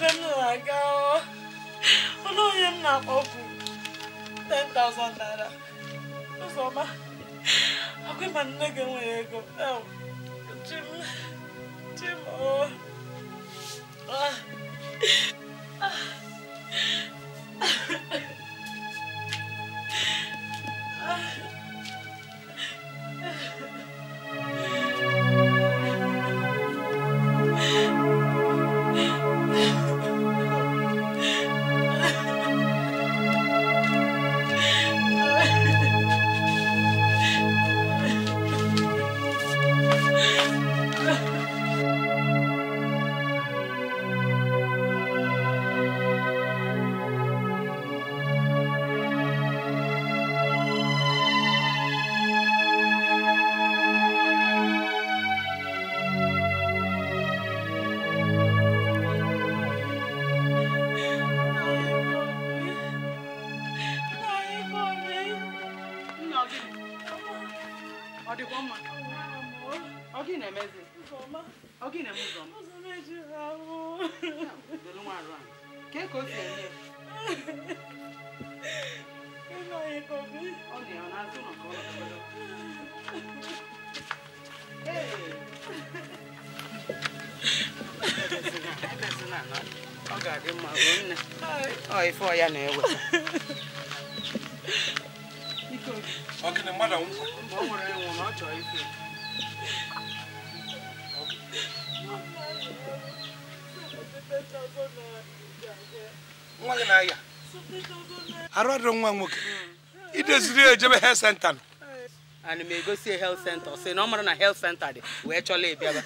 ebe m na-aga ọnụ onye m na bụ 10,000 naira ụzọma agwa ma nne gị nwere ego ọ dịkwa mma ọ gị na-emezi ọ gị na-eme ụzọ ọ dị ya n'azụ nọ ka ọ ọ ga-adị mma ọ ọ na-eweta Ọ nwere ịnwụ na ọ Arụ adịrị nwa nwoke. Ideziri ejebe health center nọ. Ana m egosi health center sị na ọ mara na health center dị wee chọla ịbịaba.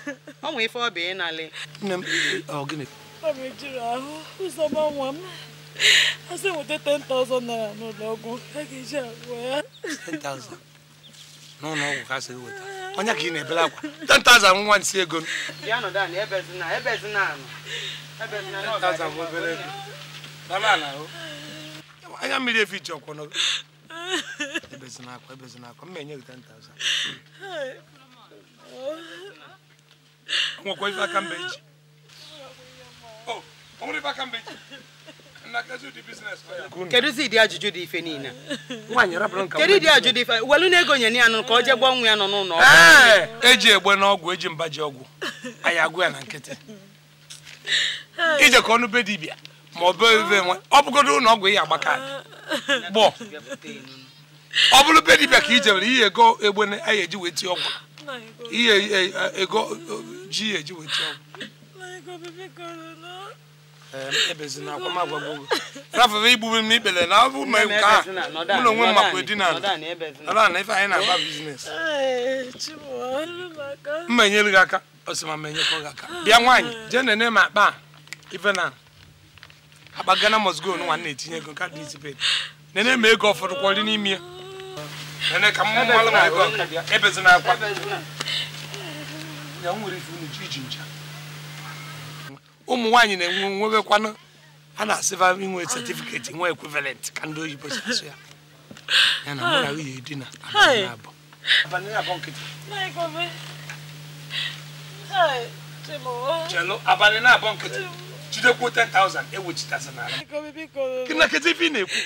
Ọ nwe ife ọ bụ ịnalị. Nne m, ọ gịnị? Ọ bụ ejiri ahụ ụzọ gbanwa m. a sị 10,000 naira n'ụlọ ọgwụ a ga-eji agwọ ya 10,000 n'ụlọ ọgwụ ka sị weta onye ka na-ebere akwa 10,000 nwa si ego ya nọdụ anị ebezina ebezina anị ebezina anị 10,000 obere ego dama ala o. anya mmiri efi ji ọkwọ mbe ọ nwere mbe kedu ụdị ajụjụ dị ife niile kedu ịdị ajụjụ dị ife welu na-ego nye ya nụ ka ọ jee gwa nwa ya nọ n'ụlọ ọgwụ eji e egbe n'ọgwụ eji mba ji ọgwụ anyị agwụ ya na nkịtị ije ka ọnụ be dibịa ma ọ bụ ebe nwe ọ bụgodo ụlọ ọgwụ ya agba kaadị gbọọ ọ bụrụ be dibịa ka ije were ihe ego egbe ya eji wee tie ọgwụ ihe e, e, ego ji ya eji wee tie ọgwụ afọ igbube m ikpere na abụ m nke a mụ na onwe m na-agba enyere aka ọsịma ma enyekwa gị aka bịa nwaanyị je nene m akpa ife na akpa gana mosgo nwa na-etinye ego nka dị izipet nene ma ego ọfọdụ kwọrị n'ime ya nene ka mmụ ebezina akwa ụmụ nwaanyị na-enwe nwebekwanụ a na-asịba inwe setifiketi nwa ekwivalent ka ndị oyibo si ya ya na mụ na nwunye dina abalị abụọ abalị na-abụọ nkịtị jidekwu 10,000 ewechitasa n'ala kịnakịta ife ị na-ekwu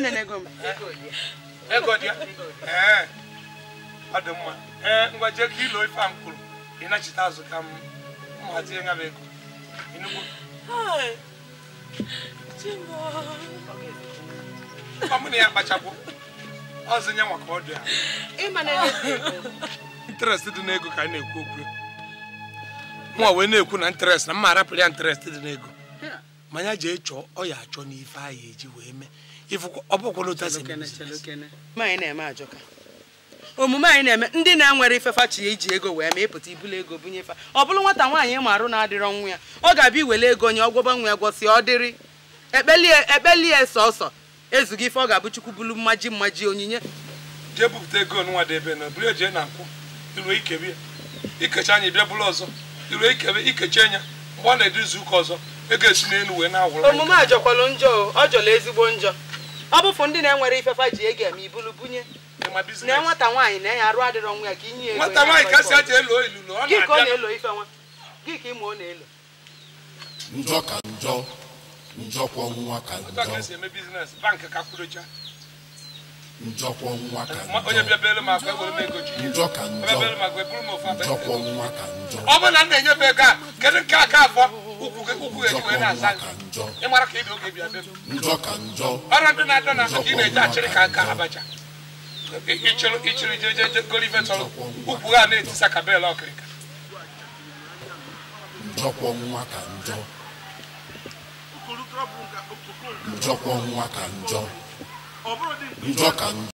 na-ekwu ebe ọ ka ọ na-ekwu na interest na mma arapụrụ ya interest dị n'ego manya ji chọọ ọ ya achọ n'ife anyị eji wee mee ọ na n'otu asị omume anyị na-eme ndị na-enwere ifefachi ya iji ego wee ma ịpụta ibulu ego fa ọ bụrụ nwata nwaanyị ịmarụ na-adịrọ nwa ya ọ ga-abịa iwele ego onye ọgwọba nwa ya gwọsi ọ dịrị ekpelie sọsọ ezughị ife ọ ga-abụ chukwu bulu mmaji mmaji onyinye omume a njọ ọ jọla ezigbo njọ bụfụ ndị na-enwere ifefa ji ego eme ibulu na nwata nwaanyị na-enye arụ adịrọ nwa ya ka inye ya nwata nwaanyị kasị elo na ọ na nwa gị ka ọ na-elo njọ ka njọ njọkwọ nwa ka njọ e njọkwọ e e nwa ka njọ ọ bụ na m na-enye ego a kedu nke aka afọ ka ị dị oge bịa bịa njọ ka njọ ọrụ ndị ka ị na ka ichoro ichoro jeje golive ukwu ha na-eti sakabela ọkịrịka njọ ka njọ